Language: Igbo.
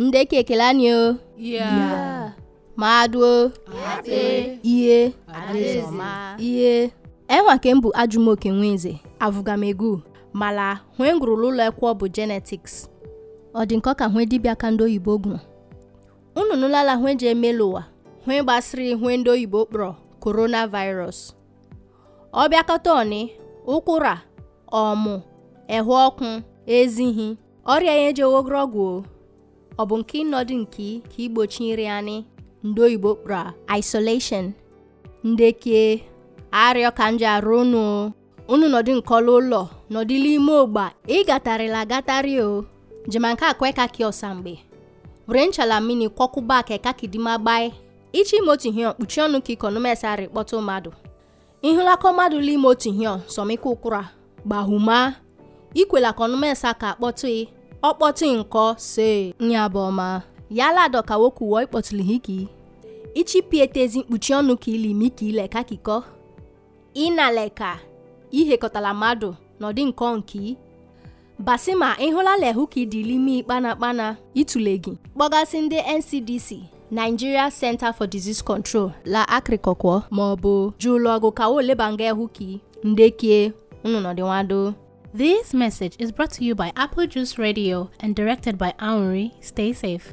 ndeke ekele anyị o maduo ihe ihe enwa ke m bụ ajụmoke nwenze avụgamegu mala hwe ngwurụla ụlọ e ekwo bụ genetics ọ dị nkọ ka hwe dibịa ka ndị oyibo gụ unu nụlala hwe ji emelu ụwa hwe gbasịrị hwe ndị oyibo kpọrọ coronavirus ọ bịakọta ọnị ụkwụra ọmụ ehu ọkụ ezihi ọrịa ya eji ewogoro ọgwụ o ọ bụ nke ịnọdụ nke ka igbochi nri anyị ndị oyibo kpọrọ isolation ndeke arịọ ka nje arụ unu unu nọdụ nkọla ụlọ nọdịla ime ogba ịgatarịla agatarị o jema nke akwe kaki ọsa mgbe were nchala mmiri kwọkụba ka kakidima gbae ichi ime otu ihe kpuchie ọnụ ka ikonomesarị kpọta mmadụ ịhụlakọ mmadụ la ime otu ihe sọmika ụkwụra gbahuma ikwela ka ọnụmesa ka akpọtụ ọkpọtị nkọ se nyabọma yala dọka wokuwo ikpọtụli hiki ezi mkpuchi ọnụ ka ilimi ka ileka kikọ inaleka ihekọtala mmadụ n'ọdị nkọ nke ma ịhụla lehu ka idilimi kpana kpana itule gị kpọgasị ndị ncdc nigeria center for disease control la akrịkọkwọ maọbụ jụụlụ ọgụ ka wo nga ehu ka ndekie unu nọdịnwado This message is brought to you by Apple Juice Radio and directed by Aunri. Stay safe.